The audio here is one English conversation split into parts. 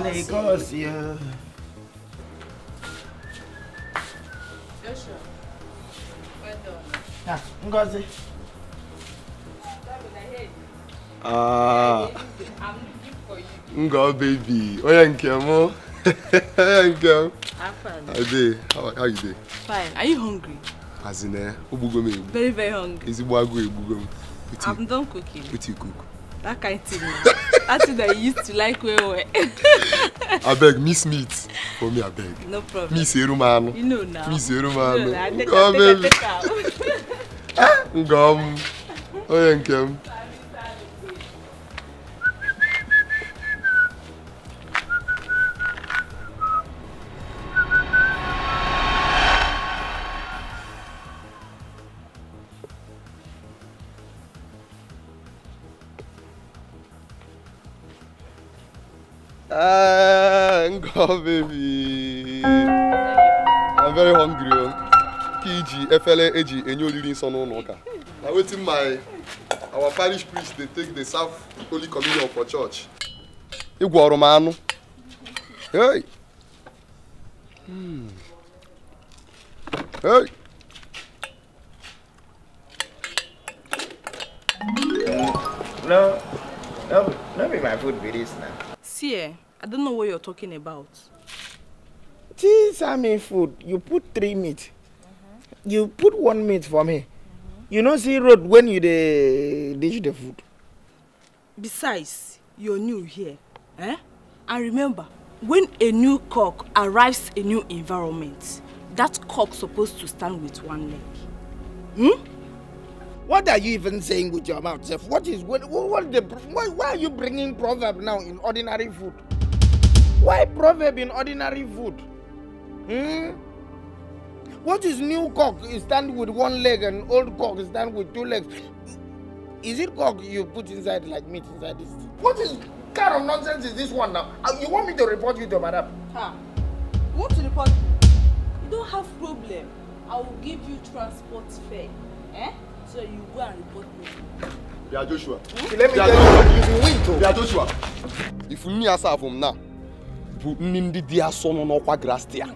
negócio. Deixa. Vai, Ah, Ngozi. Ah. Ngo baby. Oya Nkem o. Oya Nkem. Ade, how are you dey? Fine. Are you hungry? As in eh, me. Very very hungry. Ezigbo agụ egbugo m. you, I'm done cooking. What cook? That kind of thing. That's what I used to like well well. I beg, miss meat for me, I beg. No problem. Miss Erumano. You know now. Miss Erumano. You know now. Take, take, take, take out. Ah, ngom. Oh, Oh, baby. I'm very hungry. Oh. PG FLA efere eji enye oriri nsọ n'ụlọ ụka. I'm waiting my our parish priest They take the serve holy communion for church. Igwe ọrụ m anụ. Hey. talking about? Tea salmon food, you put three meat. Mm-hmm. You put one meat for me. Mm-hmm. You know see road when you dey dish the food. Besides, you're new here. Eh? And remember, when a new cock arrives a new environment, that cock supposed to stand with one leg. Hmm? What are you even saying with your mouth, Seth? What is what? What, the, what why are you bringing proverb now in ordinary food? Why proverb in ordinary food? Hmm? What is new cock stand with one leg and old cock stand with two legs? Is it cock you put inside like meat inside this? What is kind of nonsense is this one now? Uh, you want me to report you to madam? Ha. Ah, you want to report You don't have problem. I will give you transport fare. Eh? So you go and report me. They are Joshua. Hmm? Let me tell you, you will win too. They Joshua. If you need answer from now, people ndị di ya so nọ n'ọkwa grastia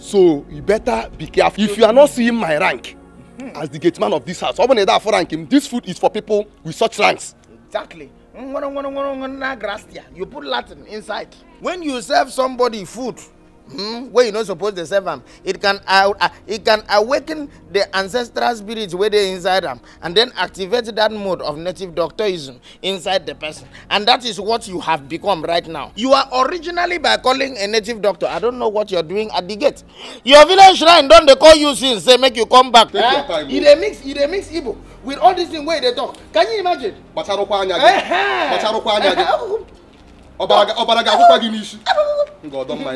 so you better be careful if you are not seeing my rank hmm. as the gate man of this house ọ bụ na ị da this food is for people with such ranks. exactly nwere you put latin inside when you serve somebody food hmm, wey you no suppose dey serve am it can uh, uh, it can awaken the ancestral spirit wey dey inside am and then activate that mode of native doctorism inside the person and that is what you have become right now you are originally by calling a native doctor i don't know what you are doing at the gate your village shrine don dey call you since say make you come back Take eh you oh. dey mix you dey mix igbo with all this thing wey you dey talk can you imagine. kpacharụkwa anya gị kpacharụkwa anya gị ọbara ga-akwụkwa gị n'isi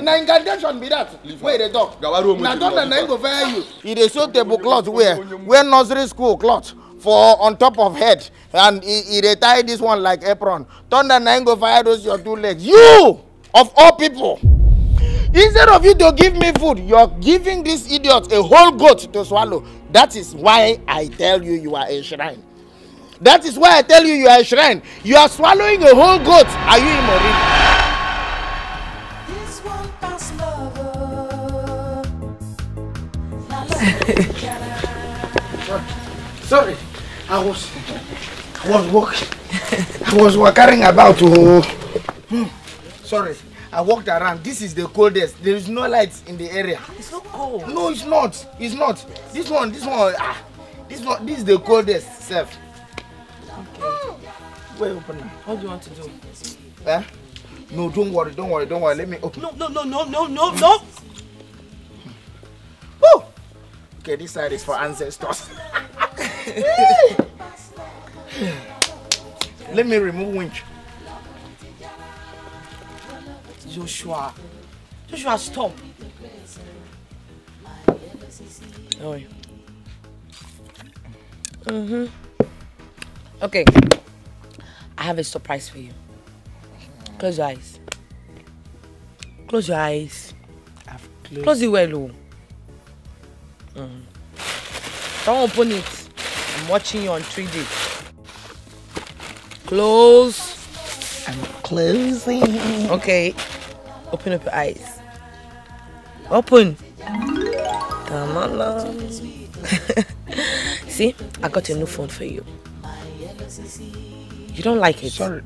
na incantation be that wey dey talk na don na go fair you He dey sew table cloth wear wear nursery school cloth for on top of head and he dey tie this one like apron thunder na go fire those your two legs you of all people instead of you to give me food you're giving this idiot a whole goat to swallow that is why i tell you you are a shrine That is why I tell you, you are a shrine. You are swallowing a whole goat. Are you in Imori? Sorry, I was, I was walking, I was walking about. Oh, hmm. sorry, I walked around. This is the coldest. There is no lights in the area. It's so cold. No, it's not. It's not. This one, this one, ah, this one, this is the coldest self. Okay. Wait, open now. What do you want to do? Eh? No, don't worry, don't worry, don't worry. Let me open. No, no, no, no, no, no, no. Woo! Okay, this side is for ancestors. Let me remove winch. Joshua. Joshua, stop. Oh. Mm-hmm. Okay. I have a surprise for you. Close your eyes. Close your eyes. I've closed. Close it well, oh. Mm. Don't open it. I'm watching you on 3D. Close. I'm closing. Okay. Open up your eyes. Open. See, I got a new phone for you. You don't like it? Sorry.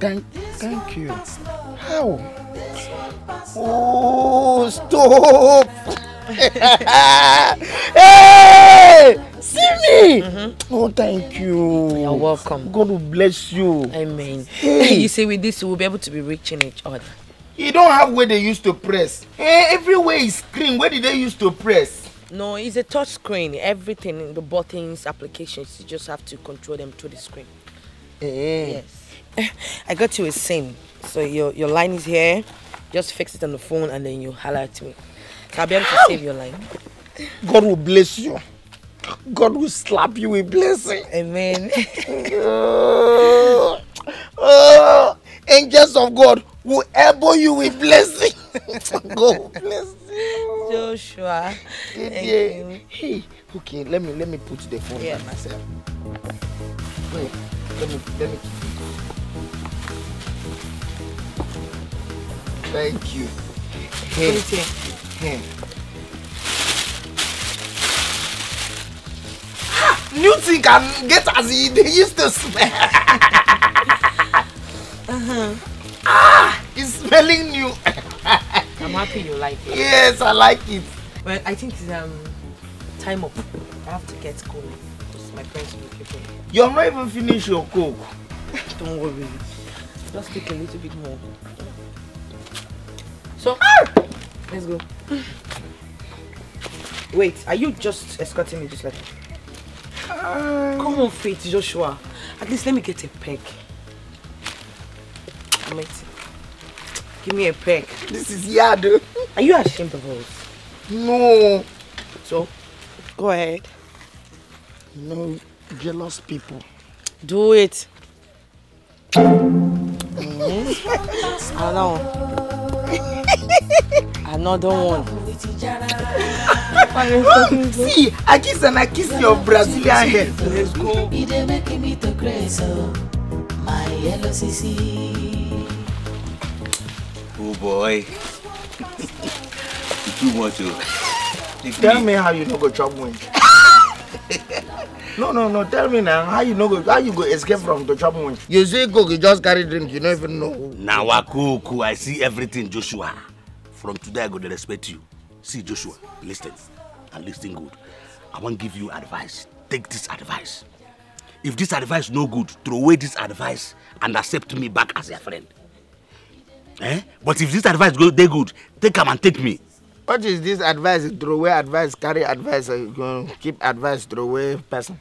Thank, thank you. How? Oh, stop! hey! See me! Mm -hmm. Oh, thank you. You're welcome. God will bless you. Amen. Hey. you see, with this, we'll be able to be reaching each other. You don't have where they used to press. Hey, eh, everywhere is screen. Where did they used to press? No, it's a touch screen. Everything, the buttons, applications, you just have to control them through the screen. Eh, eh. Yes. I got you a sim. So your your line is here. Just fix it on the phone and then you holler at me. So I'll be able to save your line. God will bless you. God will slap you with blessing. Amen. uh, angels of God will elbow you with blessing. God bless you. Joshua. Hey, okay, let me let me put the phone yeah. by myself. Wait let me, let me. Thank you. Here. Here. New thing can get as he used to smell. uh-huh. Ah, it's smelling new. I'm happy you like it. Yes, I like it. Well, I think it's um time up. I have to get going. my friends will keep You're not even finished your coke. Don't worry. Just take a little bit more. So, ah! let's go. Wait, are you just escorting me just like... Um, Come on, Faith, Joshua. At least let me get a peck. I might... Give me a peck. This is yard. Are you ashamed of us? No. So, go ahead. No jealous people. Do it. Mm-hmm. Another one. Another one. See, I kiss and I kiss your Brazilian head. Let's go. Oh boy. Too much. Tell me how you don't go chop wind. no no no tell me now how you know go how you go escape from the chop munch. you see cook you just carry drink you don't even know. Now, wakuku i see everything joshua from today i go dey respect you see joshua listen and listen good i wan give you advice take this advice if this advice no good throw away this advice and accept me back as your friend eh but if this advice go they good take them and take me what is this advice throwaway advice carry advice uh, keep advice throwaway person.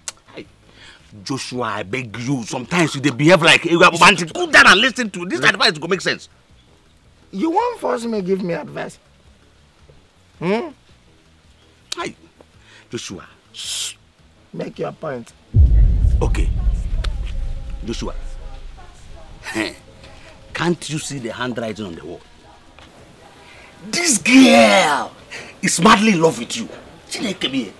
joshua i beg you sometimes you behave like a man to go down and listen to this mm. advice go make sense. you won't force me give me advice. Hmm? Hi, joshua. Shh. make your point. okay joshua can't you see the handwriting on the wall. This girl is madly in love with you. Chineke bi.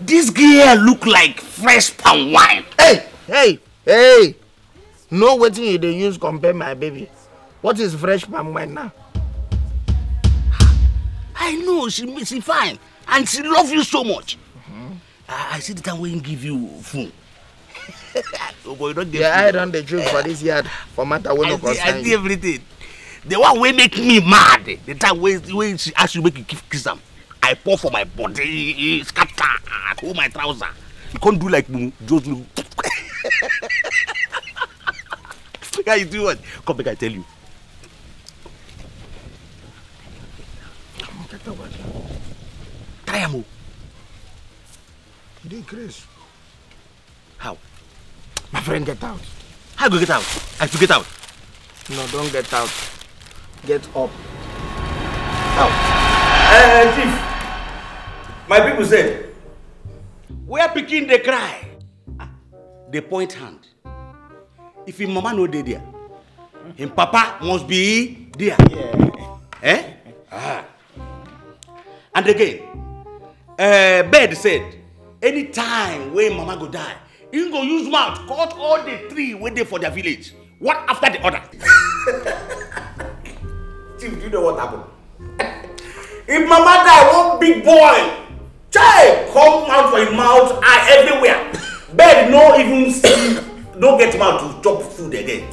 This girl look like fresh palm wine. Hey, hey, hey. No waiting, you dey use compare my baby. What is fresh palm wine now? I know she she fine and she love you so much. Mm -hmm. I, I see the time when give you phone. oh boy, don't don Yeah, I eye the dey drink for this yard for matter wey no concern I see everything. the one wey make me mad the time way wey she ask you make you kiss am i pour for my body scatter pull my trouser you can't do like just look guy you do what come back! i tell you. try him. o. you dey craze. how. my friend get out. how go get out i to get out. no don't get out. Get up. Out. Uh, chief, my people said, where picking they cry, they ah, point hand. If him mama no dey there, him papa must be there. Yeah. Eh? Ah. And again, uh, Bed said, anytime when mama go die, him go use mouth cut all the tree wey dey for their village, one after the other. Steve, do you know what happened? if Mama die, one big boy, child, come out for him mouth, eye everywhere. Bed, no even see, don't get him out to chop food again.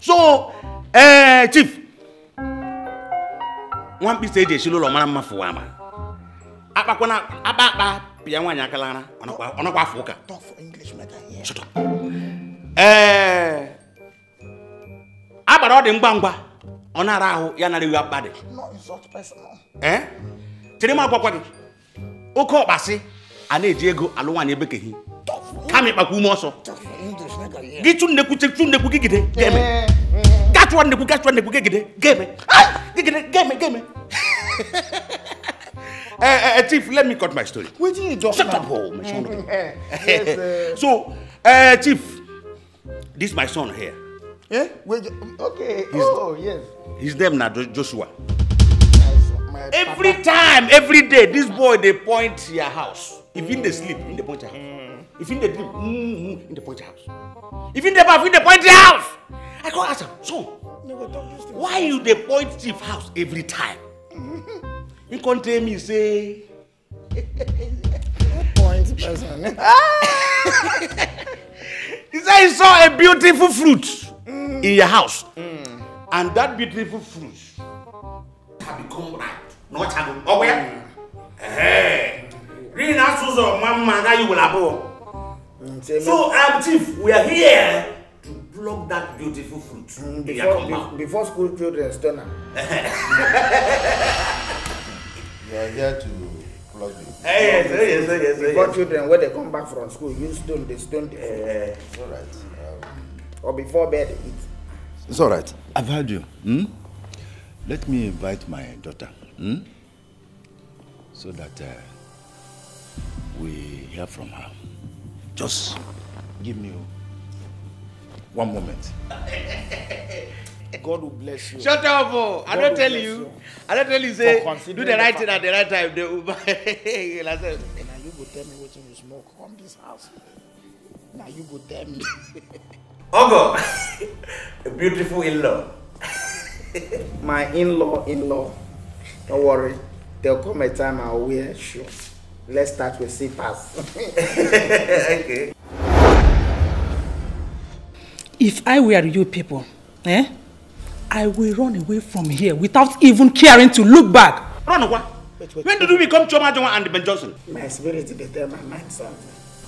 So, eh, uh, Chief, one piece of shilo lo mara mma fuwa ma. Apa kona, apa apa, pia wanya kalana, onokwa, onokwa fuka. Talk for English, mother. Yeah. Shut up. Eh, uh, abara ọ ọ̀nà ara ahụ ya nara iwe akpa dị ee tiri m agwakwa gị oke ọkpasị a na-eji ego alụ nwaanyị ebekeghị kama ịkpakwa ume ọsọ gị chụ nnekwu chụ nnekwu gị gide ga-eme eh, eh. gachụwa nnekwu gachụwa nnekwu gị gide ga gịgide ga-eme Uh, eh, uh, Chief, let me cut my story. Wetin you talk Shut now? up, oh, my son. yes, uh... so, uh, Chief, this my son here. Eh? Wait, okay. He's, oh, yes. His name now, Joshua. Every time, every day, this boy they point your house. If in the sleep, in the point your house. If in the dream, in mm, the mm, point your house. If in the bath, in the point your house. I go ask him, So, why you the point chief house every time? He come tell me say. point person. he say he saw a beautiful fruit in your house. Mm. And that beautiful fruit can become ripe. No, channel. Oh, where? Hey. Read that source of mama that you will have. Oh. So, um, Chief, we are here to block that beautiful fruit mm, in before, your compound. Be before school children turn up. We are here to block the. Hey, yes, yes, yes, yes, yes. Before yes. children, when they come back from school, you stone, they stone Uh, All right. Um, or before bed, eat. It's all right. I've heard you. Hmm? Let me invite my daughter. Hmm? So that uh, we hear from her. Just give me one moment. God will bless you. Shut up, oh. I don't tell you. you. I don't tell you, say, do the right thing at the right time. They will buy. now you go tell me what you smoke on this house. Now you go tell me. Ogo, a beautiful in-law. My in-law, in-law. Don't worry. There'll come a time I'll wear shoes. Let's start with slippers. okay. If I were you people, eh? I will run away from here without even caring to look back. Run away? Wait, wait, When wait. did we become Choma Joma and Ben Johnson? My spirit is better, my mind something.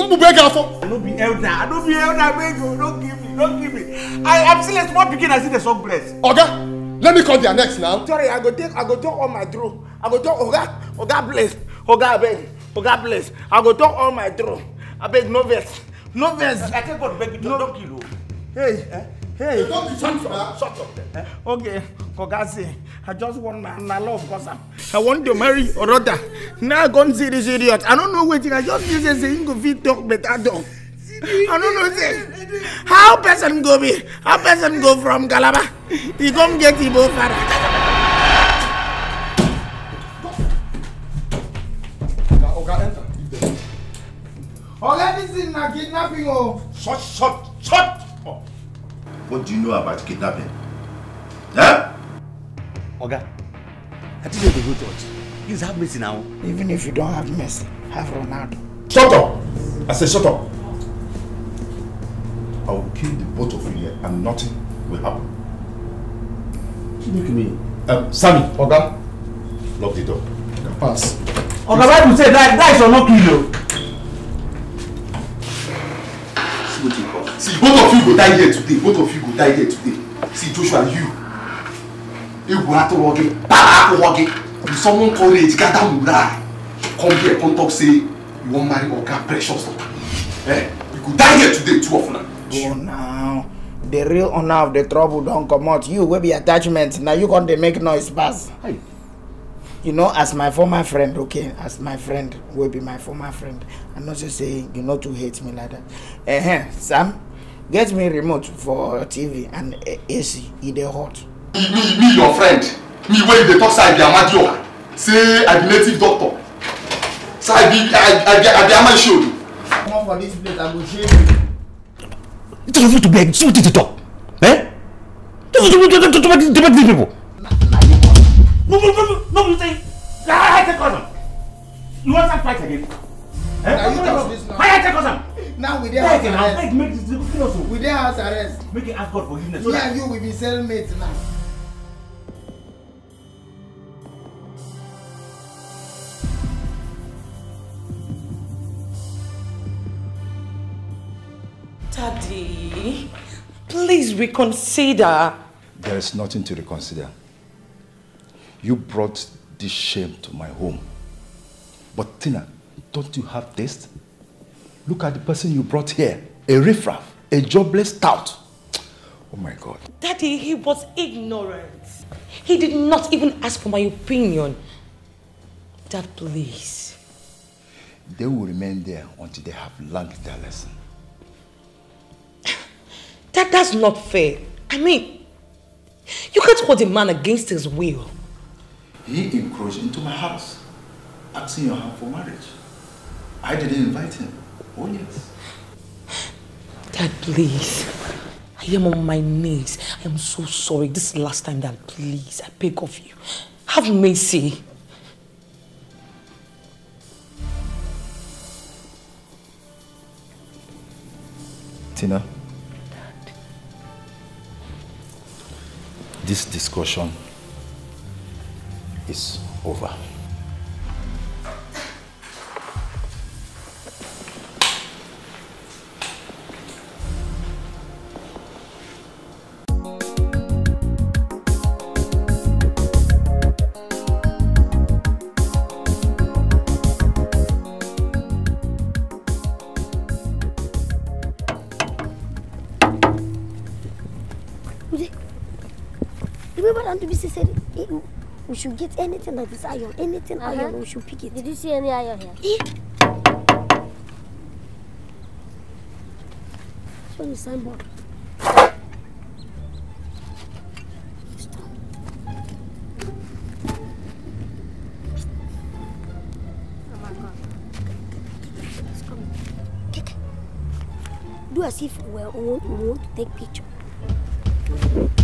I don't be elder. I don't be elder. Beg you. Don't give me. Don't give me. I am still a small pikin. I see the song bless. Oga, let me call their next now. Sorry, I go take. I go talk all my drum. I go talk. Oga, Oga bless. Oga beg. Oga bless. I go talk all my drum. I beg no vex. No vex. I take God beg you. No. Don't kill you. Hey. Eh? Hey, don't be shut up, shut up. Eh? Okay, Kogazi, I just want my, my love because I'm, I want to marry or rather. Now I gone see this idiot. I don't know waiting. I just use a saying go fit but I don't. I don't know this. How person go be? How person go from Galaba? He come get Ibo father. All anything na kidnapping oh. Shut, shut, shut! What do you know about kidnapping? Huh? Oga, I didn't go to church. Please have mercy now. Even if you don't have mercy, have Ronaldo. Shut up! I say shut up! I will kill the both of you here and nothing will happen. Look at me. Um, Sammy. Oga. Lock the door. Pass. Oga, why do you say that, that is your no kill you. you go die here today both of you go die here today see Joshua you to atụrụ gị para akwụkwọ gị you summon courage gather die. come here come talk say you wan marry oga precious eh you go die here today two of them. go now the real owner of the trouble don't come out. you will be attachment Now you gonna make noise pass. Hey. you know as my former friend okay as my friend will be my former friend I'm not just saying you no to hate me like that uh -huh, sam get me remote for tv and eh, ac e dey hot me me your friend me wey you dey talk say i be amadioha say i be native doctor say i be i I i I be amashodu. come on for this place i go shame you. you tell me to beg see wetin you talk eh you tell me to to to beg to beg these people. no no no no you say na ah, i take cousin you wan start fight again. eh na you talk this now. why i take cousin. now we dey house arrest. beg make this thing also. we dey house arrest. make it ask God forgiveness. me and you will be cellmates now. Daddy, please reconsider. There is nothing to reconsider. You brought this shame to my home. But Tina, don't you have taste? Look at the person you brought here. A riffraff, a jobless tout. Oh my God. Daddy, he was ignorant. He did not even ask for my opinion. Dad, please. They will remain there until they have learned their lesson. That, that's not fair. I mean, you can't hold a man against his will. He encroached into my house, asking your hand for marriage. I didn't invite him. Oh, yes. Dad, please. I am on my knees. I am so sorry. This is the last time, Dad. Please, I beg of you. Have mercy. Tina. Dad. This discussion is over. she said, hey, eh, we should get anything like this iron, anything uh -huh. iron, we should pick it. Did you see any iron here? Yeah. Show the signboard. Do as if we want, we want to take picture.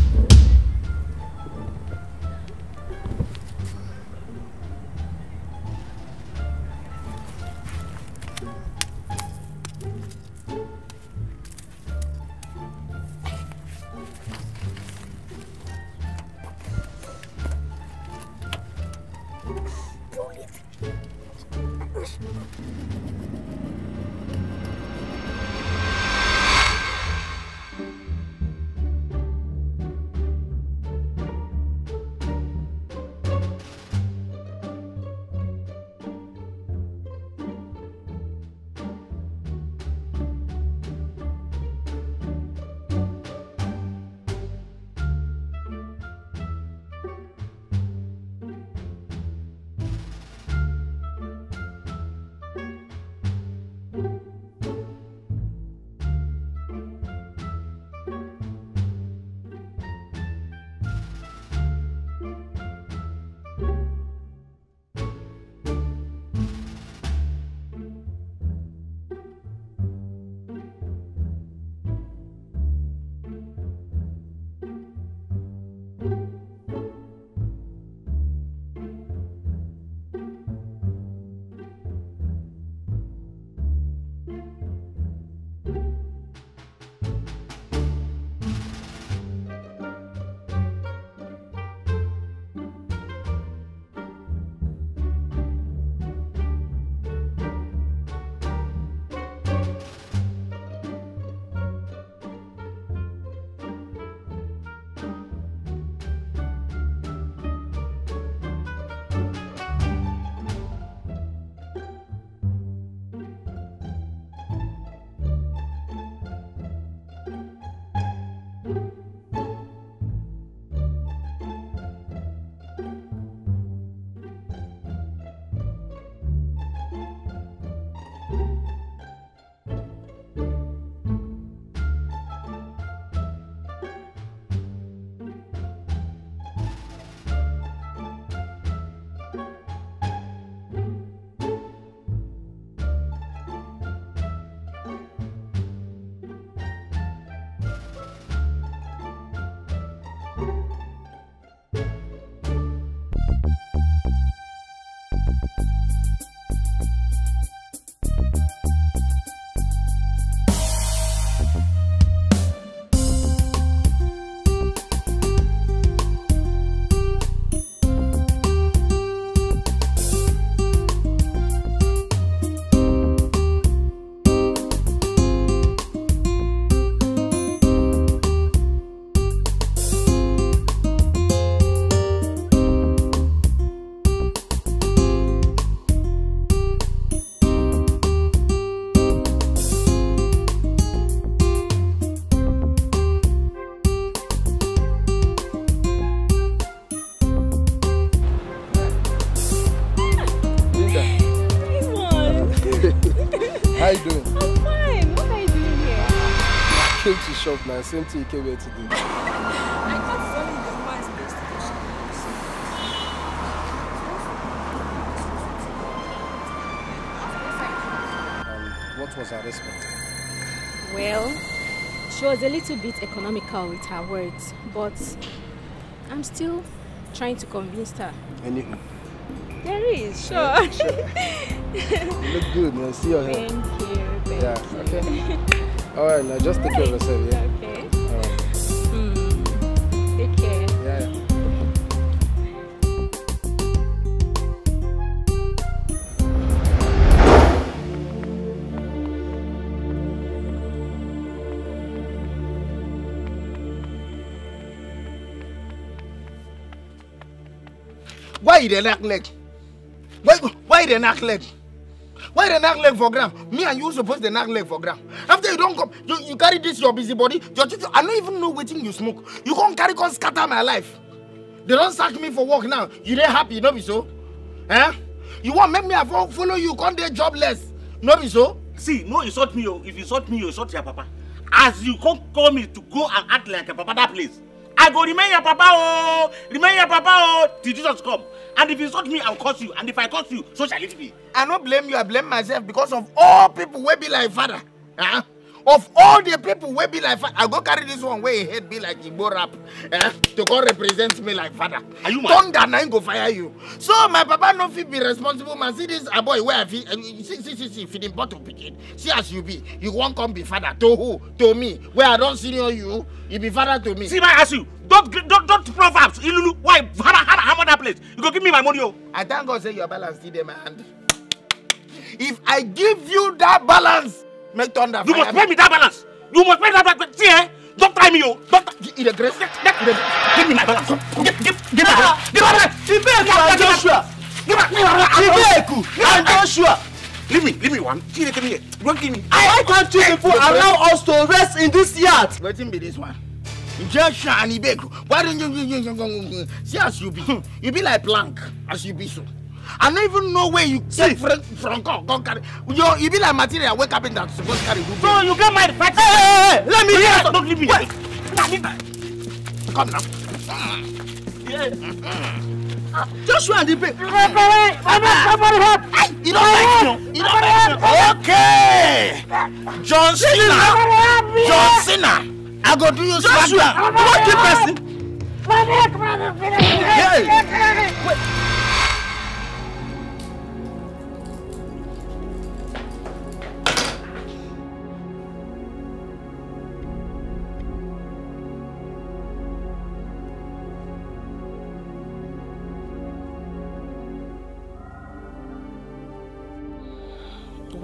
shop now, same thing you came here to do. I can't the man's best What was her response? Well, she was a little bit economical with her words, but I'm still trying to convince her. Anywho, There is, sure. sure. you look good, man. See your hair. Thank you. Thank yeah, you. okay. All right, now just take care of yourself, yeah? Okay. All right. Hmm. Yeah, Why you dey knock leg? Why why you dey knock Why they knock leg for ground? Me and you supposed to knock leg for ground. After you don't come, you, you carry this your busy body. Your teacher, I don't even know wetin you smoke. You can't carry come scatter my life. They don't sack me for work now. You dey happy, no be so? Eh? You want make me follow you, come there jobless. No be so? See, no insult me, oh. If you insult me, you insult your papa. As you come call me to go and act like a papa that place. I go remain your papa oh, remain your papa oh, till Jesus come. And if you insult me, I'll curse you. And if I curse you, so shall it be. I no blame you, I blame myself because of all people wey be like father. Uh ah. -huh of all the people wey be like father i go carry this one wey him head be like igbo rap eh, to come represent me like father are you mad thunder na him go fire you so my papa no fit be responsible man see this aboy ah, wey i fit uh, see see see see feeding bottle pikin see as you be you wan come be father to who to me wey i don senior you you be father to me. see my ask you don't don't don't proverbs ilulu why hara hara hammer that place you go give me my money o. Oh. i thank god say your balance still dey my hand if i give you that balance Make thunder. You must pay me that balance. You must pay that balance. See, eh? Don't try me, yo. Don't. In the grace. Get, get, get, give me my balance. Get, get, get my balance. Give my balance. Give me my Joshua. Give me my balance. Give me my Joshua. Leave me, leave me one. See, they come here. Don't give me. I can't You people allow us to rest in this yard. Let him be this one. Joshua and Ibeku. Why don't you see as you be? You be like plank as you be so. I don't even know where you See, take from from God. carry. Yo, you be like material wake where carpenter supposed carry. Good no, you get my fight. Hey, hey, hey, let me hear. Don't leave me. Wait. Come now. Yeah. Joshua and the baby. You don't like you. You don't like you. Okay. John Cena. John Cena. I go do you swagger. What the person? Hey. Wait.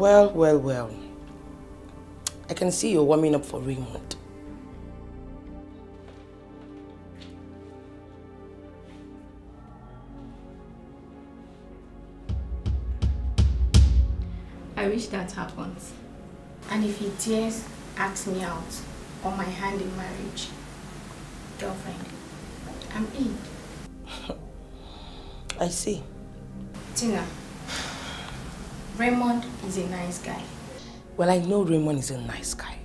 Well, well, well. I can see you're warming up for Raymond. I wish that happens. And if he dares ask me out or my hand in marriage, girlfriend, I'm in. I see. Tina, Raymond is a nice guy. Well, I know Raymond is a nice guy.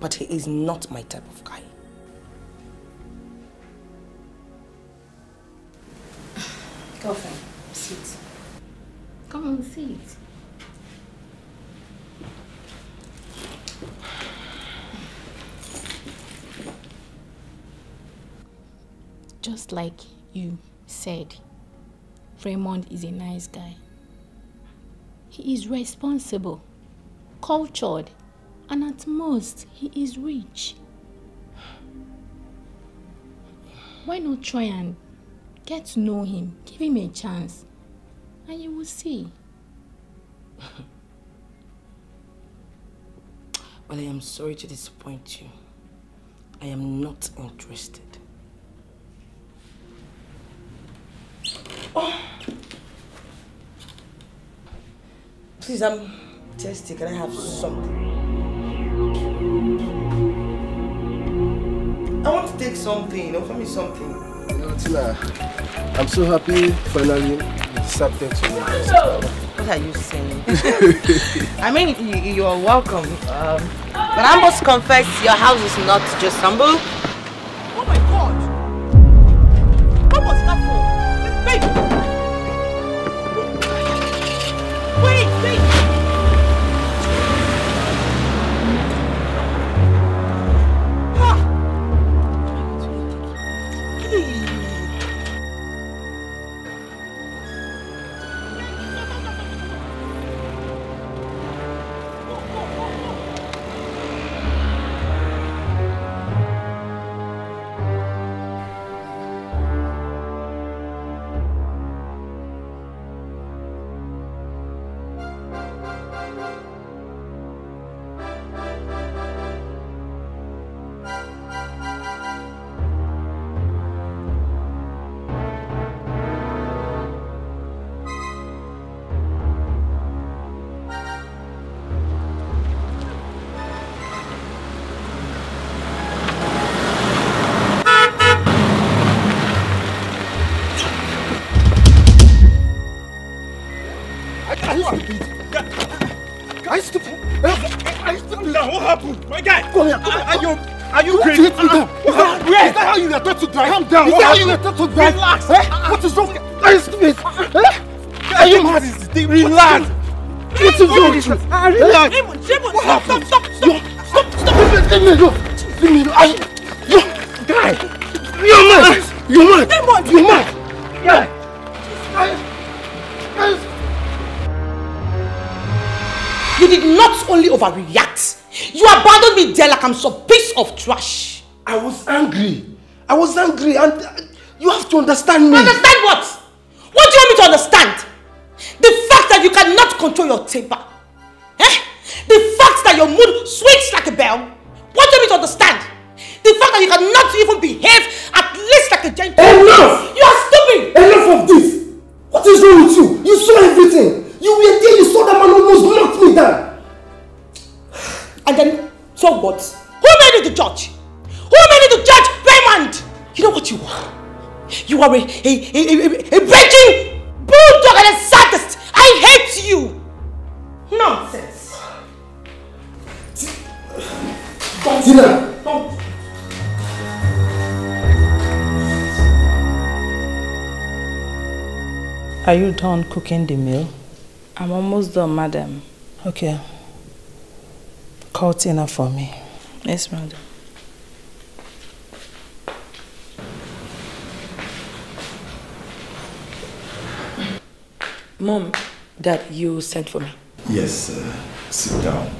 But he is not my type of guy. Girlfriend, sit. Come on, sit. Just like you said, Raymond is a nice guy he is responsible, cultured, and at most, he is rich. Why not try and get to know him, give him a chance, and you will see. well, I am sorry to disappoint you. I am not interested. Oh. Please, I'm thirsty. Can I have something? I want to take something. Offer me something. You know, Tina, I'm so happy finally accepted to me. What are you saying? I mean, you, you are welcome. Um, but I must confess, your house is not just humble. What you hit me down? Is that, where? Is that how you were taught to drive? Calm down. Is that how you were taught to drive? Relax. Eh? What is wrong? Please, please. Eh? Eh? Are you mad? Is the thing? Relax. What is wrong with eh? you? Ah, relax. Raymond, Raymond, stop, stop, stop, stop, stop, stop. Leave me alone. Leave me alone. I, you, guy, you're mad. You're mad. Raymond, you're mad. Guy, guys, guys. You did not only overreact, you abandoned me there like I'm supposed of trash. I was angry. I was angry and uh, you have to understand me. Understand what? What do you want me to understand? The fact that you cannot control your temper. Eh? The fact that your mood swings like a bell. What do you want me to understand? The fact that you cannot even behave at least like a gentleman. Enough! You are stupid! Enough of this! What is wrong with you? You saw everything! You were there, you saw that man almost knocked me down! And then, so what? Who made you the judge? Who made you the judge Raymond? You know what you are? You are a, a, a, a, a breaking bulldog and a sadist. I hate you. Nonsense. Don't. Tina. Don't. Are you done cooking the meal? I'm almost done, madam. Okay. Call Tina for me. Yes, madam. Mom, Dad, you sent for me. Yes, uh, sit down.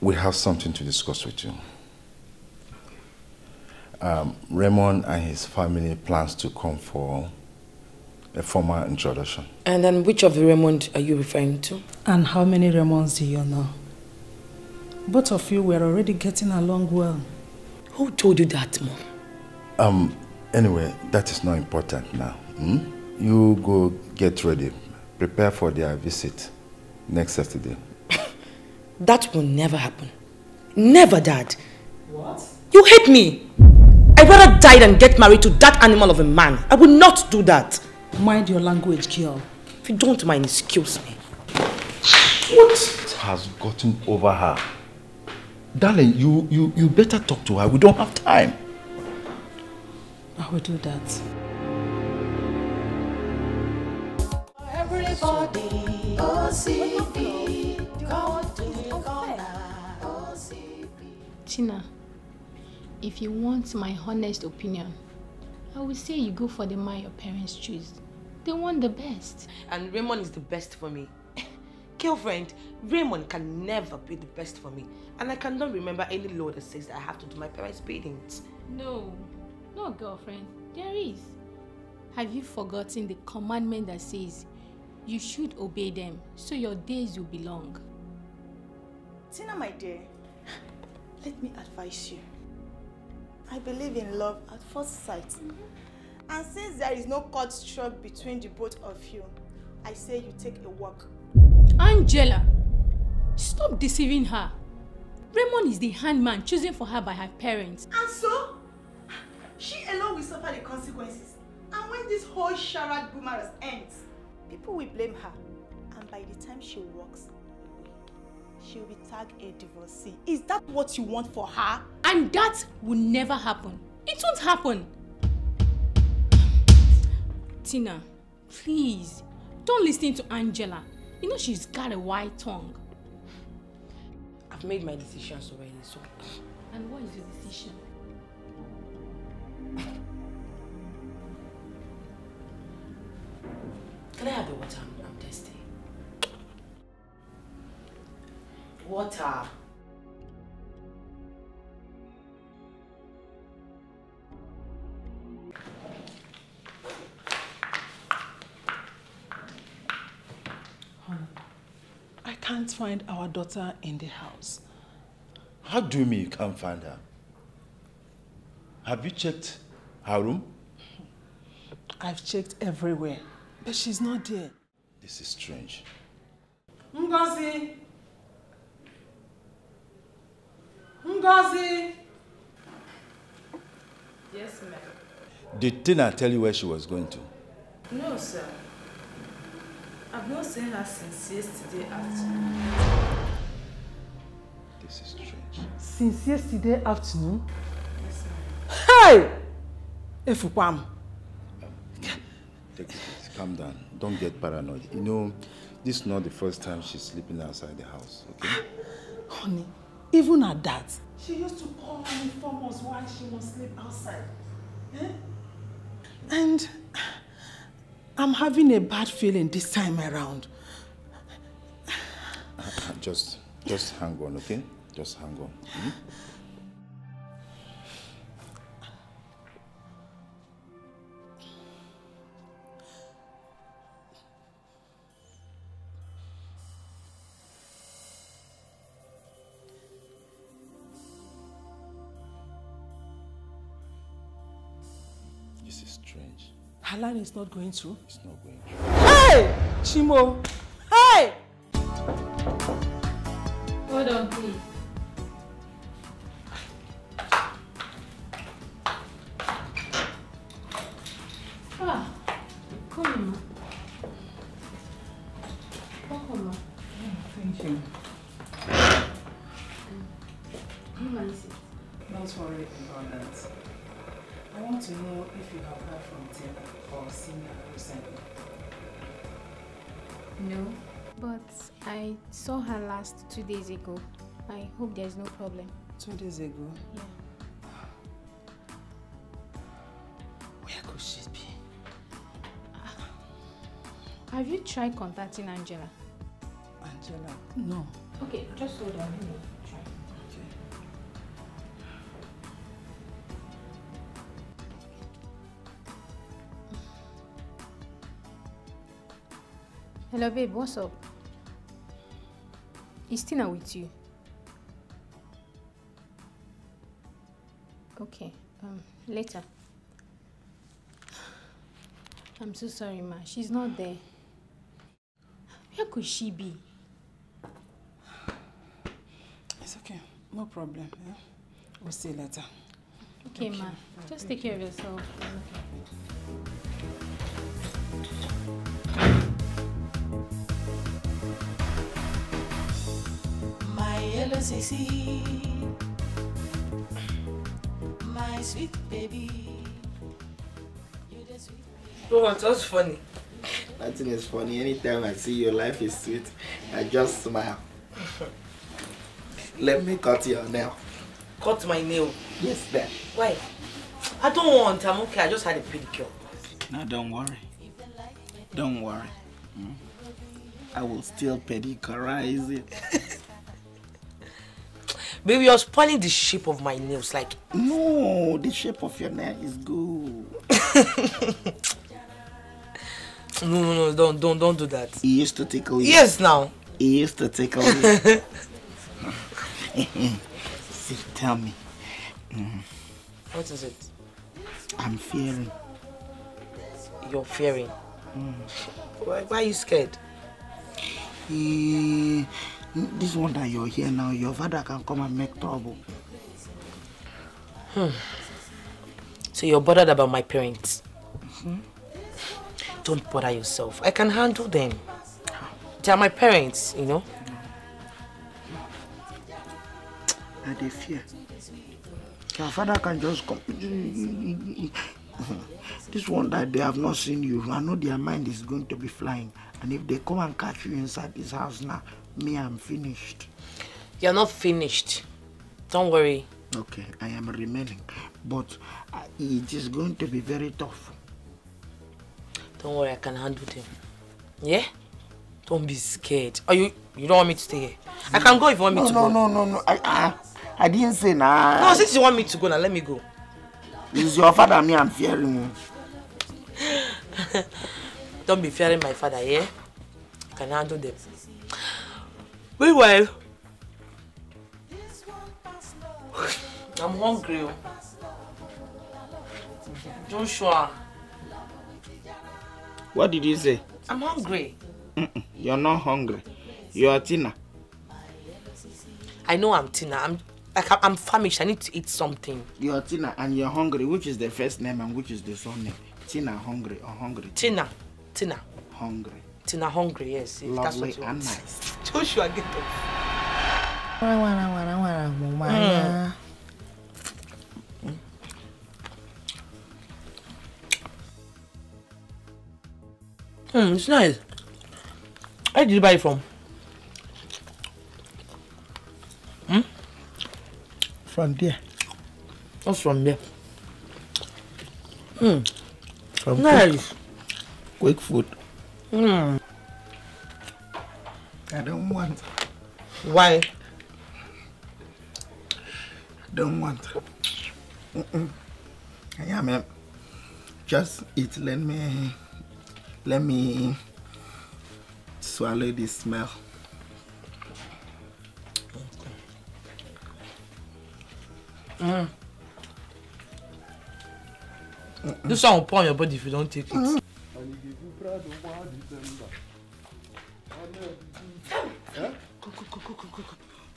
We have something to discuss with you. Um, Raymond and his family plans to come for a formal introduction. And then which of the Raymond are you referring to? And how many Raymonds do you know? Both of you were already getting along well. Who told you that, Mom? Um, anyway, that is not important now. Hmm? You go get ready. Prepare for their visit next Saturday. that will never happen. Never, Dad. What? You hate me. I'd rather die than get married to that animal of a man. I will not do that. Mind your language, girl. If you don't mind, excuse me. What has gotten over her? Darling, you, you, you better talk to her. We don't have time. I will do that. Everybody, Tina, if you want my honest opinion, I would say you go for the man your parents choose. They want the best. And Raymond is the best for me. Girlfriend, Raymond can never be the best for me. And I cannot remember any law that says that I have to do my parents' bidding. No, no girlfriend, there is. Have you forgotten the commandment that says you should obey them so your days will be long? Tina, my dear, let me advise you. I believe in love at first sight. Mm -hmm. And since there is no cut struck between the both of you, I say you take a walk. Angela, stop deceiving her. Raymond is the handman chosen for her by her parents. And so, she alone will suffer the consequences. And when this whole charade boomerang ends, people will blame her. And by the time she walks, she will be tagged a divorcee. Is that what you want for her? And that will never happen. It won't happen. Tina, please, don't listen to Angela. You know she's got a white tongue. I've made my decision already, so... And what is your decision? Can I have the water? I'm thirsty. Water. can't find our daughter in the house. How do you mean you can't find her? Have you checked her room? I've checked everywhere, but she's not there. This is strange. Ngozi! Ngozi! Yes, ma'am. Did Tina tell you where she was going to? No, sir. I've not seen her since yesterday afternoon. This is strange. Since yesterday afternoon? Yes, ma'am. Hey! Efupam. Um, take it, calm down. Don't get paranoid. You know, this is not the first time she's sleeping outside the house, okay? Honey, even at that. She used to call and inform us why she must sleep outside. Eh? And I'm having a bad feeling this time around. Just, just hang on, okay? Just hang on. Hmm? Alan is not going through. He's not going through. Hey! Chimo! Hey! Hold on, please. No, but I saw her last two days ago. I hope there's no problem. Two days ago? Yeah. Where could she be? Ah. Have you tried contacting Angela? Angela? No. Okay, just hold on. Hello, babe, what's up? Is Tina with you? Okay, um, later. I'm so sorry, ma. She's not there. Where could she be? It's okay. No problem. Yeah? We'll see later. Okay, okay. ma. Just take care of yourself. Okay. just a seed, my sweet baby. Bro, what's funny? Nothing is funny. Anytime I see your life is sweet, I just smile. Let me cut your nail. Cut my nail? Yes, there. Why? I don't want. I'm okay. I just had a pedicure. No, don't worry. Don't worry. Hmm? I will still pedicurize it. Baby, you're spoiling the shape of my nails. Like, no, the shape of your nail is good. no, no, no, don't, don't, don't do that. He used to tickle you. Yes, now. He used to tickle you. See, tell me. Mm. What is it? I'm fearing. You're fearing? Mm. Why, why are you scared? He. This one that you're here now, your father can come and make trouble. Hmm. So you're bothered about my parents? Mm -hmm. Don't bother yourself. I can handle them. They are my parents, you know? I they fear. Your father can just come. this one that they have not seen you. I know their mind is going to be flying. And if they come and catch you inside this house now, Me, I'm finished. You're not finished. Don't worry. Okay, I am remaining. But uh, it is going to be very tough. Don't worry, I can handle them. Yeah? Don't be scared. Are you you don't want me to stay here? I can go if you want me no, to no, go. No, no, no, no. I, I, I didn't say nah. No, since you want me to go now, let me go. It's your father me I'm fearing. don't be fearing my father, yeah? I can handle them. Meanwhile, I'm hungry. Oh. Joshua. What did you say? I'm hungry. Mm -mm, you're not hungry. You are Tina. I know I'm Tina. I'm like I'm famished. I need to eat something. You're Tina and you're hungry. Which is the first name and which is the name? Tina hungry or hungry? Tina. Tina. Hungry till I'm hungry, yes. If Lovely that's what you want. and nice. Joshua, get up. Mm. Mm, it's nice. Where did you buy it from? Hmm? From there. What's from there? Hmm. From nice. Quick, quick food. Mm. I don't want. Why? don't want. Mm -mm. Yeah, Just eat. Let me. Let me swallow this smell. ne Mm pas Je ne on pas Je ne veux pas ne and you dey do proud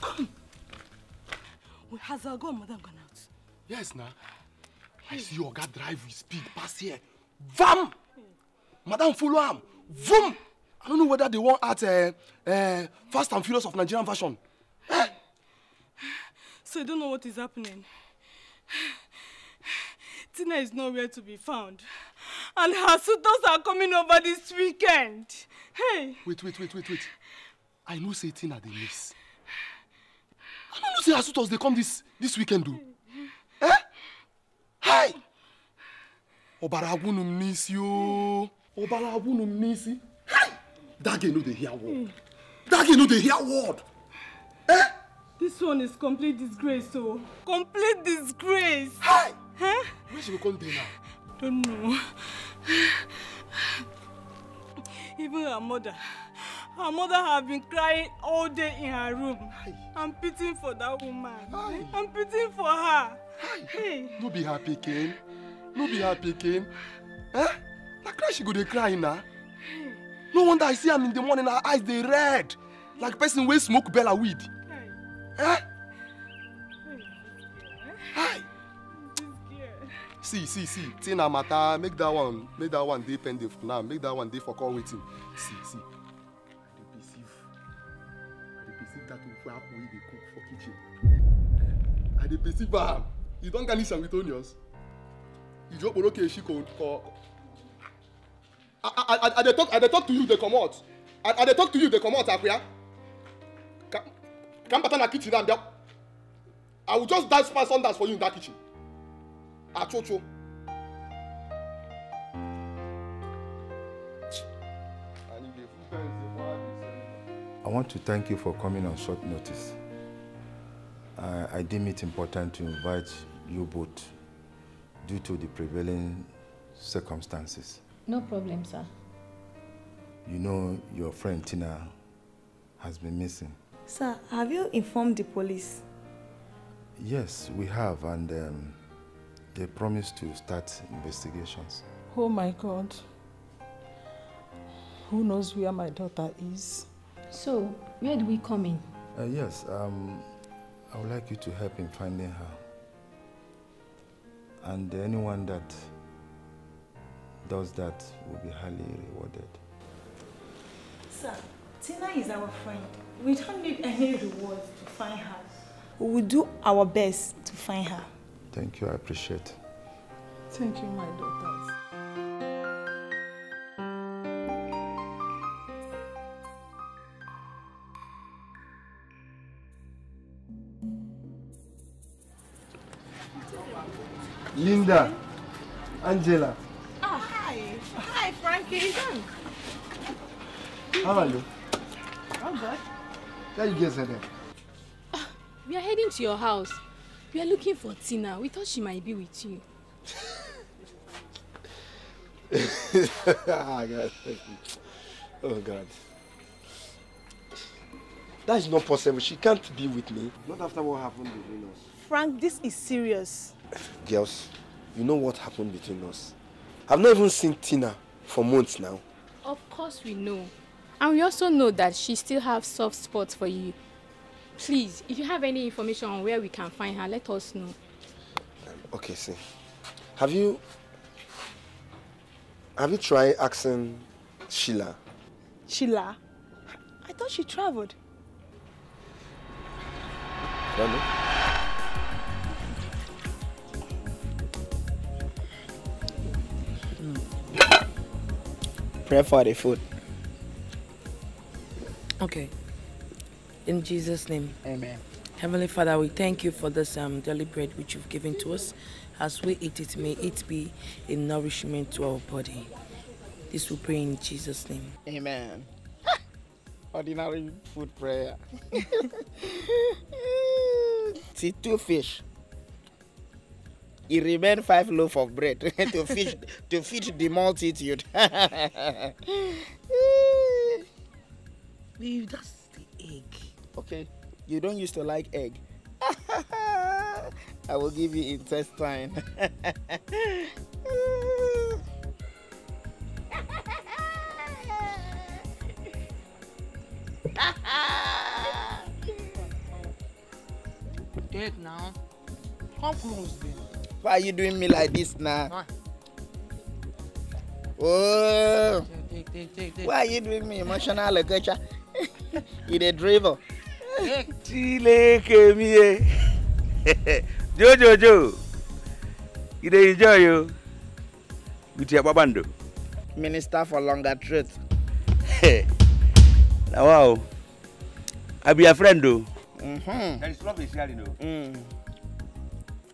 Come, come, has our girl madam gone out? Yes, na. I see your guy drive with speed pass here. Vam! Madam follow am. Vroom! I don't know whether they want at uh, uh, Fast and Furious of Nigerian version. Eh? So you don't know what is happening. Tina is nowhere to be found and her suitors are coming over this weekend. Hey. Wait, wait, wait, wait, wait. I know say Tina at the miss. I don't know say her suitors they come this this weekend do. eh? Hey. Obara wunu miss you. Obara wunu miss. Hey. That girl know dey hear word. That girl know dey hear word. Eh? This one is complete disgrace, so oh. complete disgrace. Hey. Huh? Eh? Where she go come dey now? Don't know. Even her mother. Her mother have been crying all day in her room. I'm pitying for that woman. I'm pitying for her. Hey. No be happy, pikin. No be happy, pikin. Eh? Na cry she go dey cry now. No wonder I see am in the morning, her eyes dey red. Like person wey smoke bella weed. Hey. Eh? Hey. Hi see see see say na matter make that one make that one dey pending for now make that one dey for call waiting see see i dey perceive i dey perceive that ofu akpu wey dey cook for kitchen eh, i dey perceive am you don garnish am with onions iji okporoko eshi ko ko i i i dey talk i dey talk to you dey comot i i dey talk to you dey comot akwia ka ka n bata na kitchen na bia i will just dash pass on dash for you in that kitchen. Achocho. I want to thank you for coming on short notice. I deem it important to invite you both due to the prevailing circumstances. No problem, sir. You know your friend Tina has been missing. Sir, have you informed the police? Yes, we have, and um, they promised to start investigations. Oh my God. Who knows where my daughter is? So, where do we come in? Uh, yes, um, I would like you to help in finding her. And anyone that does that will be highly rewarded. Sir, Tina is our friend. We don't need any reward to find her. We will do our best to find her. Thank you. I appreciate. Thank you, my daughters. Linda, Angela. Oh, hi. Hi, Frankie. How are you? I'm good. Where you guys are there? Ah, we are heading to your house. We are looking for Tina. We thought she might be with you. oh, God. oh, God. That is not possible. She can't be with me. Not after what happened between us. Frank, this is serious. Girls, you know what happened between us. I've not even seen Tina for months now. Of course we know. And we also know that she still has soft spots for you Please, if you have any information on where we can find her, let us know. Um, okay, see. Have you have you tried asking Sheila? Sheila? I thought she traveled. I Prepare for the food. Okay. In Jesus' name. Amen. Heavenly Father, we thank you for this um, daily bread which you've given to us. As we eat it, may it be a nourishment to our body. This we pray in Jesus' name. Amen. Ordinary food prayer. See, two fish. It remained five loaf of bread to feed to feed the multitude. Leave that's the egg okay you don't used to like egg i will give you intestine Dead now. Come close then. Why are you doing me like this now? Oh. Why are you doing me emotional like a You a drivel. Chileke mie. Jojo jo. You enjoy you. With your babando. Minister for longer truth. now wow. I be your friend mm-hmm. though. Mm-hmm. There is love in sharing though.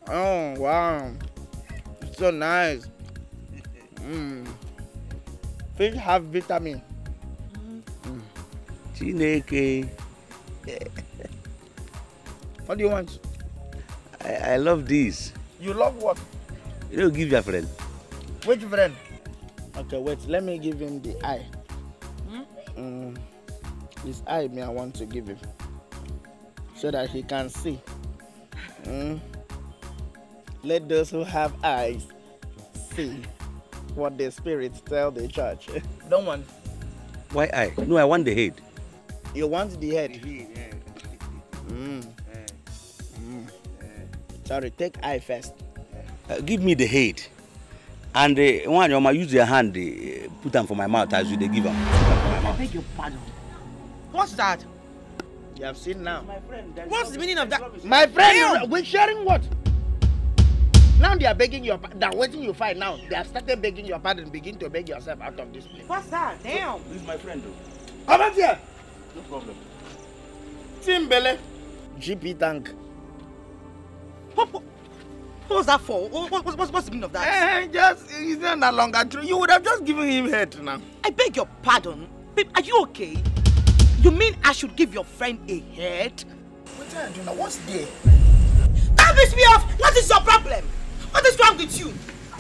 Oh wow. It's so nice. mm. Fish have vitamin. Mm. Mm. what do you want? I, I love this. You love what? You don't give your friend. Which friend? Okay, wait. Let me give him the eye. Hmm? Mm, his eye, me, I want to give him so that he can see. Mm. Let those who have eyes see what the spirits tell the church. Don't want. Why I? No, I want the head. You want the head? Mm. Mm. Sorry, take eye first. Uh, give me the head. And uh, one, you might use your hand, uh, put them for my mouth as you they give them. I beg your pardon. What's that? You have seen now. My friend, What's the meaning of that? My friend, Damn. we're sharing what? Now they are begging your pardon. They're waiting you fight now. They have started begging your pardon. Begin to beg yourself out of this place. What's that? Damn. This is my friend, though. Come out here. No problem. Timbele. GP tank. What, was that for? What, what, what's the meaning of that? Eh, just, it's not no longer true. You would have just given him head now. I beg your pardon. Babe, are you okay? You mean I should give your friend a head? What are you doing now? What's there? Don't piss me off! What is your problem? What is wrong with you?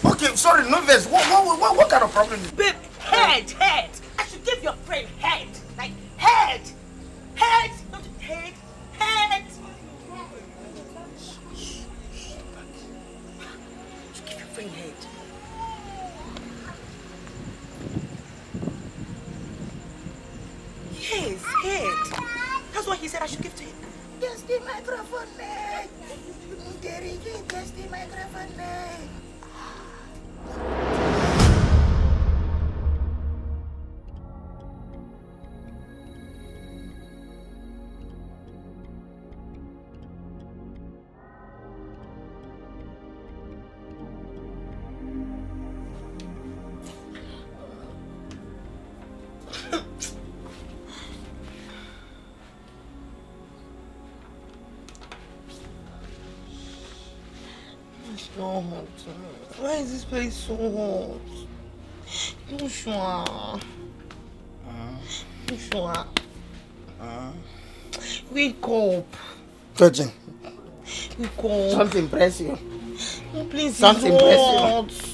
Okay, sorry, no verse. What, what, what, what kind of problem is Babe, head, head! I should give your friend head! Head! Head! not Head! Head! You keep your free head. Yes, head. That's what he said I should give to him. Just the microphone leg. Derrick, just the microphone leg. so hot? Why is this place so hot? Joshua. Uh, Joshua. Uh, Wake up. Virgin. Wake up. Something press you. No, please, Something Press you.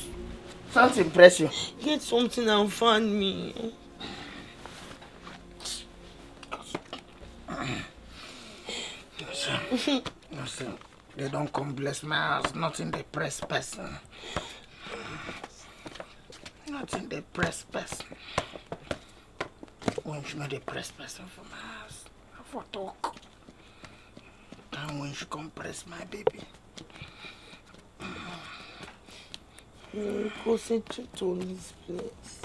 Something press you. Get something and find me. Listen. Listen. They don't come bless my house. Not in the press person. Not in the press person. When she not the press person for my house. For talk. and when she come press my baby. You mm. mm. go sit to this place.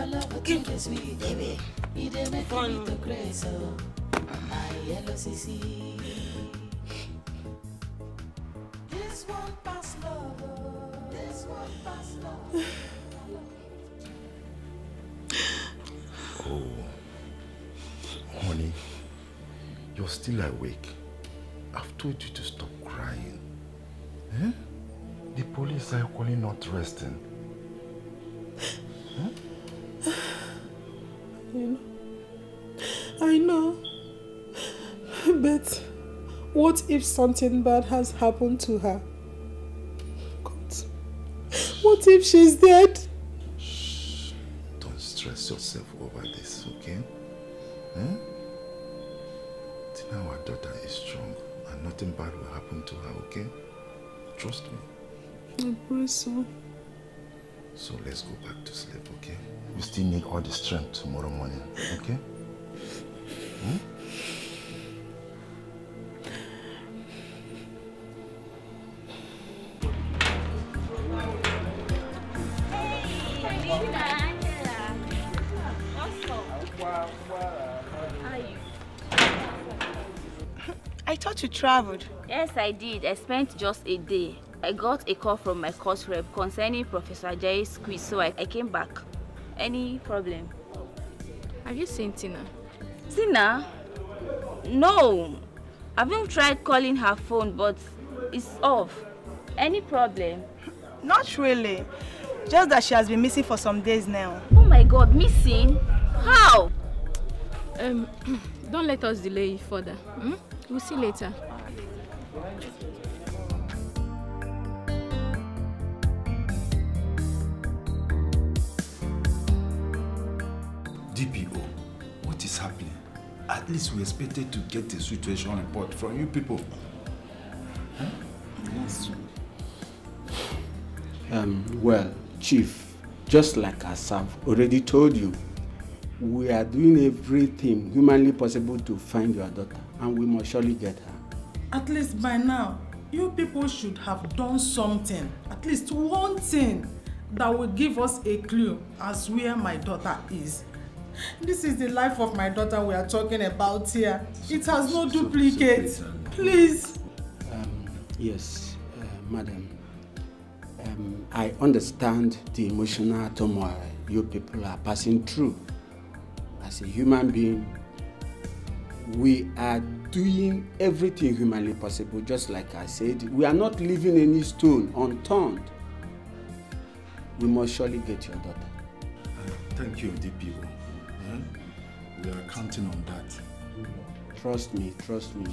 your love baby. You dey make to oh. My yellow This one pass love, this one pass love. Oh, honey, you're still awake. I've told you to stop crying. Eh? The police are calling not resting. if something bad has happened to her? God. What if she's dead? Shh. Don't stress yourself over this, okay? Eh? Now Tina, our daughter is strong and nothing bad will happen to her, okay? Trust me. I pray so. So let's go back to sleep, okay? We still need all the strength tomorrow morning, okay? Hmm? traveled? Yes, I did. I spent just a day. I got a call from my course rep concerning Professor Jay's quiz, so I, I came back. Any problem? Have you seen Tina? Tina? No. I've even tried calling her phone, but it's off. Any problem? Not really. Just that she has been missing for some days now. Oh my god, missing? How? Um, don't let us delay further. Hmm? We'll see later. DPO, what is happening? At least we expected to get the situation report from you people. Huh? Yes, Um, well, Chief, just like I have already told you, we are doing everything humanly possible to find your daughter, and we must surely get her. At least by now, you people should have done something, at least one thing that will give us a clue as where my daughter is. This is the life of my daughter we are talking about here. It has no duplicate. Please. Um, yes, uh, madam. Um, I understand the emotional turmoil you people are passing through. As a human being, we are doing everything humanly possible, just like I said. We are not leaving any stone unturned. We must surely get your daughter. thank you, DPO. Yeah? Hmm? We are counting on that. Trust me, trust me.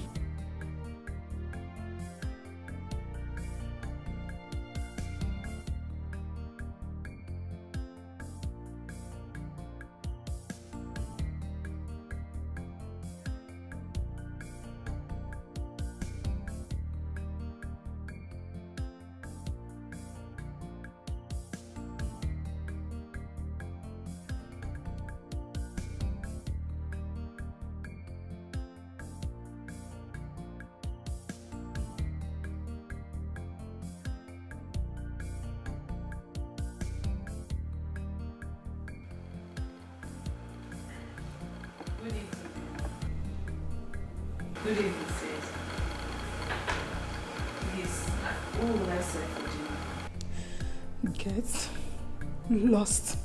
Good evening, sis. for Get lost.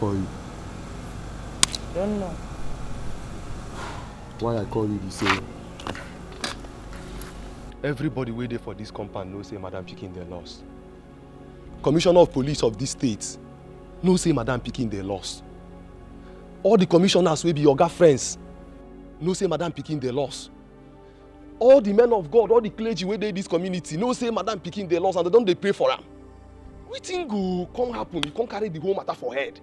call you? Don't know. Why I call you the same? Everybody wey dey for this compound know say Madam picking their loss. Commissioner of Police of this state know say Madam picking their loss. All the commissioners will be oga friends know say Madam picking their loss. All the men of God, all the clergy wey dey this community know say Madam picking their loss, and they don't they pray for them. We think go come happen? You can't carry the whole matter for head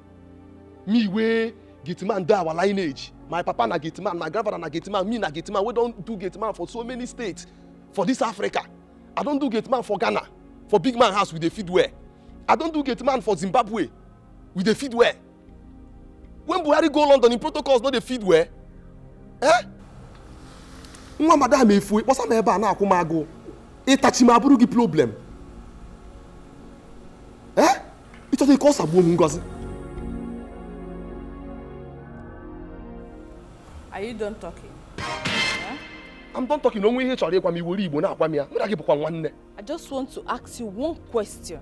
me wey gate man dey our lineage my papa na gate man my grandfather na gate man me na gate man wey don do gate man for so many states for this africa i don do gate man for ghana for big man house we dey feed well i don do gate man for zimbabwe we dey feed well when buhari go london im protocols no dey feed well eh nwa madam efue kpọsa m ebe a e e na-akwụ m agụụ ịtachi e m abụrụ gị problem eh ịchọta ike ọ sagbuo m ngozi Are you done talking? I'm done talking. No way chọrọ ịgwa m iwere Igbo na-agwa m ya. Mụ na gị I just want to ask you one question.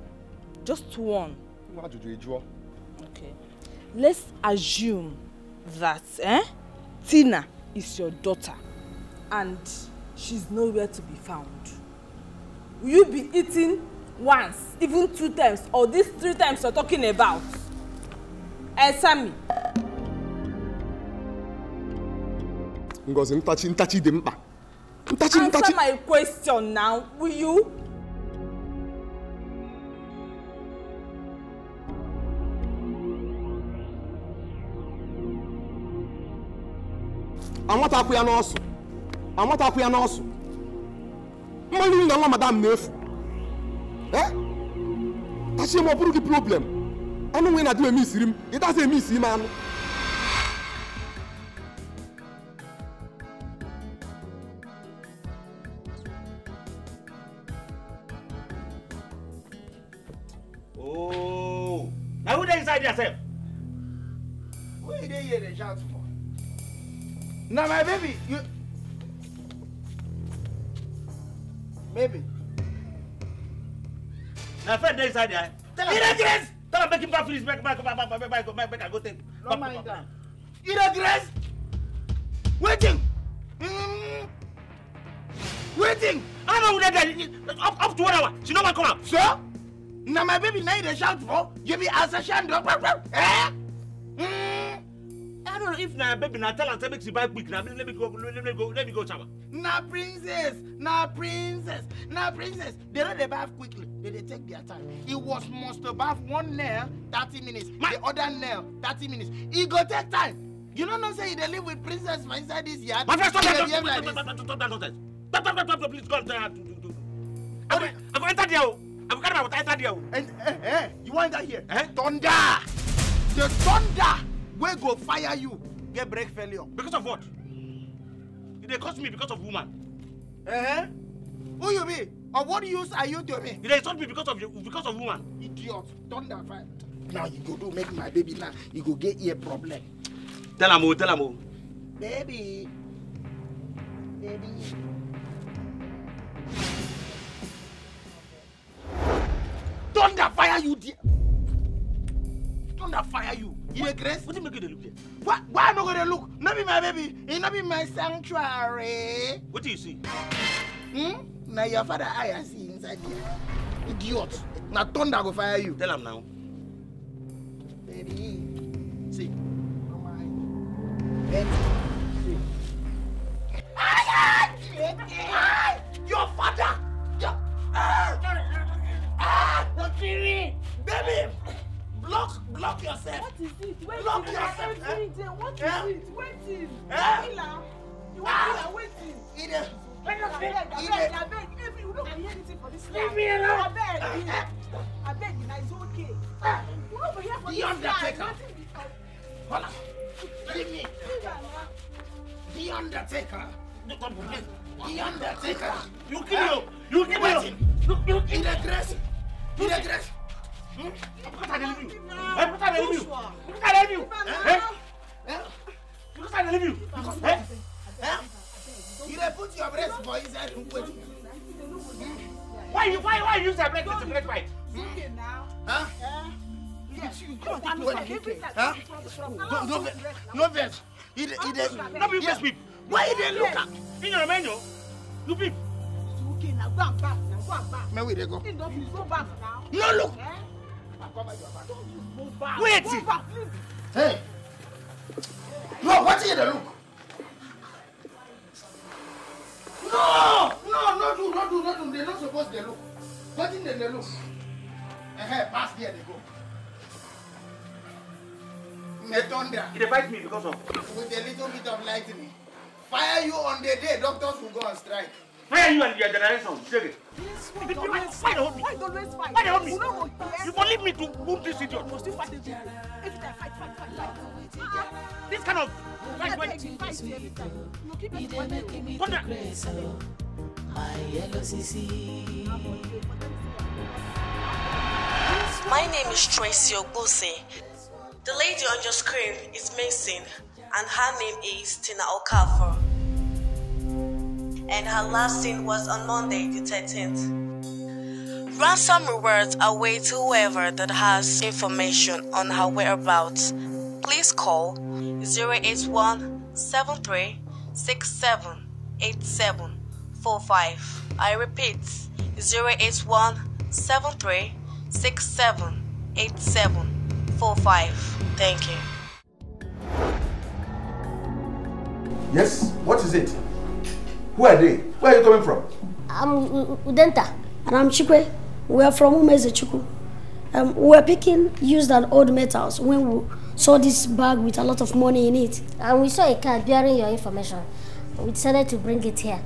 Just one. What do you draw? Okay. Let's assume that eh, Tina is your daughter and she's nowhere to be found. Will you be eating once, even two times, or these three times you're talking about? Answer me. Ngozi, ntachi ntachi dị mkpa. Ntachi ntachi. Answer my question now, will you? Amatakwu ya n'ọsụ. Amatakwu ya n'ọsụ. Mmanụ nri na nwa madam na-efu. Eh? Tachi ma ọ bụrụ gị problem. Anụ nwere na di m eme isiri m, ị dazi eme isi ime anụ. Now, my baby, you. Baby. Now, friend, there inside there. Tell him. Irregress! Tell him, make him back, please. Back, back, back, back, back, back, back, back, back, go take. Don't mind that. Irregress! Waiting! Mm. Waiting! I don't know that up, up to one hour. She no man come out. Sir? Now, my baby, now you shout for. You be as a shandor. Eh? no if na baby na tell am say make she buy quick na let me go let me go let me go shower. na princess na princess na princess they no dey baff quickly they dey take their time e was must to baff one nail thirty minutes My. the other nail thirty minutes e go take time you no know say you dey live with princess for inside this yard. my friend stop that stop that stop that nonsense stop stop stop stop please go and tell her to do. i i go enter there o i go carry my water enter there o. and you wan enter here. thunder the thunder wey go fire you get brake failure. because of what e dey cost me because of woman. Uh eh? -huh. who you be or what use are you to me. e dey insult me because of because of woman. idiot Turn that fire. now you go do make my baby now you go get ear problem. tell am o tell am o. baby baby. thunder fire you there thunder fire you. Regress? What do you make it look like? Why, why am I going to look? Not be my baby. It not be my sanctuary. What do you see? Hmm? Now your father I see inside here. Idiot. Now thunder go fire you. Tell him now. Baby. See. Come on. Bend. See. Ay, ay, your father! Your... Ah! Ah! Baby! block block yourself. what is it wait block till yourself. eh? what is eh? it waiting. Eh? ila you wan ah. ila waiting. e dey. abeg abeg abeg every you no go hear anything for this life. I me alone. abeg abeg eh? na it's okay. you eh? no go hear for this life. the undertaker. hola leave me. the undertaker. the undertaker. you kill him oh. you kill him. Oh. you kill him. he dey dress he dey dress. Because I didn't leave you. Because I didn't leave you. Because I didn't leave you. Because I didn't leave you. Because eh? Eh? You dey put your breast for inside and wait. Why you why why you use your breast to break fight? Huh? Yeah. Yes, you come to me. Huh? No, no, no, vex. He, he, he, no, be yes, people. Why he dey look at? In your menu, you people. Okay, now go and back. Now go and back. Man, where they go? No, look. Eh? Wait! Hey! No, what are you the look? No! No, no, do, no do, no do. They're not supposed to look. What in they look? Eh, pass there they go. The thunder. It fight me because of. With a little bit of lightning. Fire you on the day, doctors will go on strike. Where are you and your generation? Take it. Why me? leave me to this idiot. fight fight, ah, fight, fight, This kind of fight My name is Tracy Ogbose. The lady on your screen is Mason, and her name is Tina Okafor and her last seen was on Monday the 13th. Ransom rewards await whoever that has information on her whereabouts. Please call 081 73 I repeat 081 73 Thank you. Yes, what is it? Who are they? Where are you coming from? I'm Udenta. And I'm Chikwe. We are from Umezechuku. Um, we were picking used and old metals when we saw this bag with a lot of money in it. And we saw a card bearing your information. We decided to bring it here.